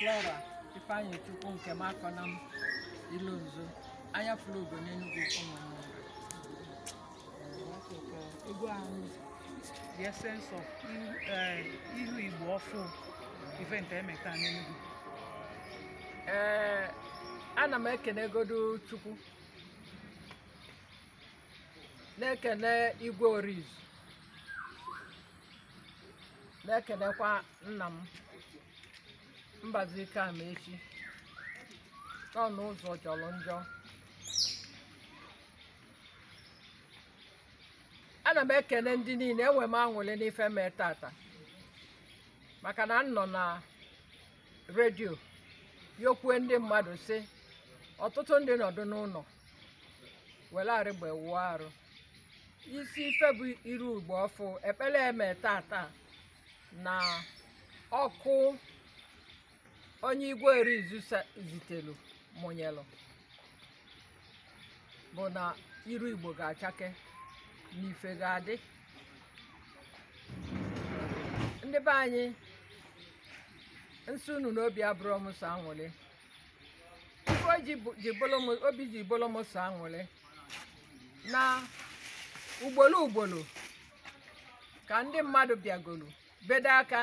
Flora Ifeanyi Chukwu nke na m Ilonzo anya Flogo n'Enugu egwu ahụ the essence of ihu eh, Igbo ọfụ event emeta n'Enugu ee eh, ana m godu Chukwu na-ekene Igwe oriz na-ekenekwa nna m Mbazike echi ọnụ ụzọ jọrọ njọ ana m ekele ndị niile enwe m anwụli n'ife mee tata maka na m nọ na redio yokwue ndị mmadụ sị ọtụtụ ndị nọdụ n'ụlọ were arịgba arụ isi ife bụ iru ugbo ọfụ ekpere eme tata na ọkụ onye igwe erizu zitelu mụnyelụ bụ na iru igbo ga-achake na ife ga-adị ndị be anyị nsị unu n'obi abụrụ m so anwụlị obi ji m na ugbolo ugbolo ka ndị mmadụ bịagolu bedo aka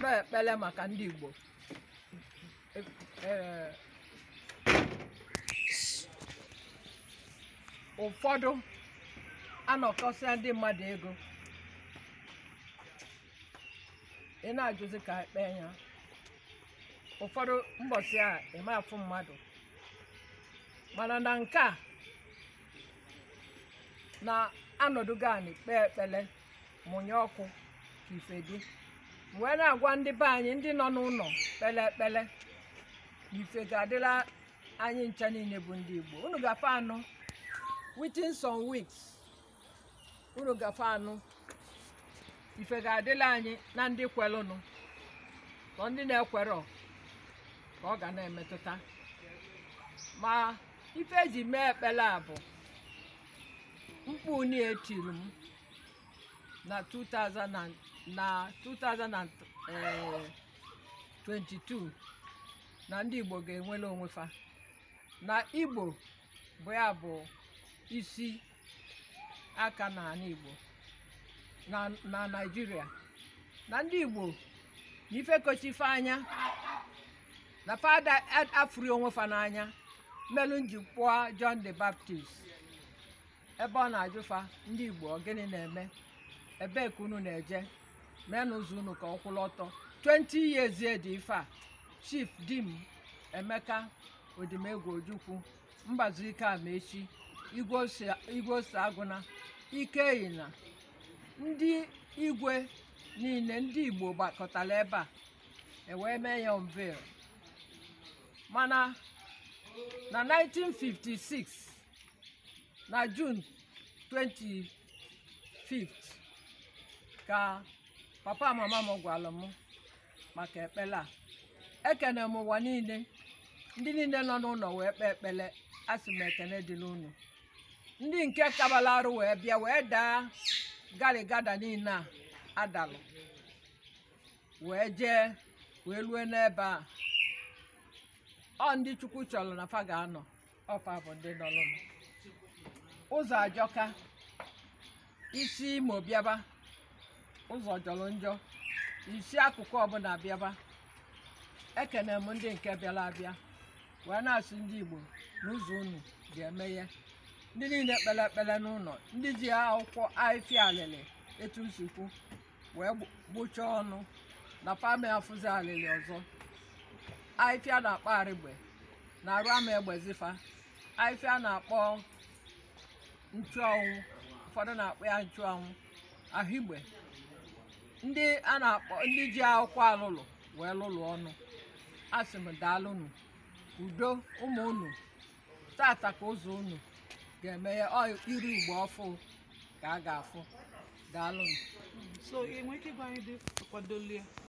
na ekpele maka ndị igbo ụfọdụ anọkọsịa ndị mmadụ ego ị na-ajụzi ka ekpee ya ụfọdụ mbọsị a eme afụ mmadụ mana na nke a na anọdụ anyị kpee ekpele mụnye ọkụ ka ife dị wee na-agwa ndị be anyị ndị nọ n'ụlọ kpele ekpele ife ga-adịla anyị ncha niile bụ ndị Igbo unu gafe anụ within some unu gafe anụ ife ga-adịla anyị na ndị kwelụnụ ka ndị na-ekwerọ ka ọ ga na-emetụta ma ife ji mee ekpela a bụ mkpu etiri m na 2022 na ndị Igbo ga-enwere onwe fa na Igbo bụ ya bụ isi aka n'ala Igbo na Naịjirịa na ndị Igbo na ife kochife anya na fada afụri onwe fa n'anya mmelụ njikwa John the Baptist ebe ọ na-ajụfa ndị Igbo ọ gịnị na-eme ebee ka unu na-eje mee n'ụzọ unu ka ọ kwụlụ ọtọ 20 years dị ife a chief dim emeka odimegwu ojukwu mbazụike amaechi igwe ose agụna ike na: ndị igwe niile ndị igbo gbakọtara ebe a ewee mee ya unveil mana na 1956 na Juun 25 ka papa mama m gwara m maka ekpere a ekene m ụwa niile ndị niile nọ n'ụlọ wee kpee ekpele asị m ekene dịla ụnụ ndị nke kabala arụ wee bịa wee daa garigada niile a adalụ wee jee wee lue n'ebe a ọ ndị chukwu chọrọ na fa ga-anọ ọfa bụ ndị nọrụnụ ụzọ ajọka isi imo bịaba ụzọ jọrọ njọ isi akụkụ ọbụla bịaba ekene m ndị nke bịara abịa wee na-asị ndị igbo n'ụzọ unu ga eme ya ndị niile kpere ekpere n'ụlọ ndị ji akwụkwọ ahịfịa alịlị etu nsukwu wee gbuchaa ọnụ na fami afụzi alịlị ọzọ ahịfịa na-akpọ arịgbe na-arụ ama egbezifa ahịfịa na-akpọ nchụanwụ ụfọdụ na-akpọ ya nchụanwụ ahụigbe ndị a na-akpọ ndị ji akwụkwọ alụlụ wee lụlụ ọnụ asị m daalụ unu udo ụmụ unu tata ka ụzọ unu ga-emeghe iri igbo ọfụ ka a ga-afụ daalụ unu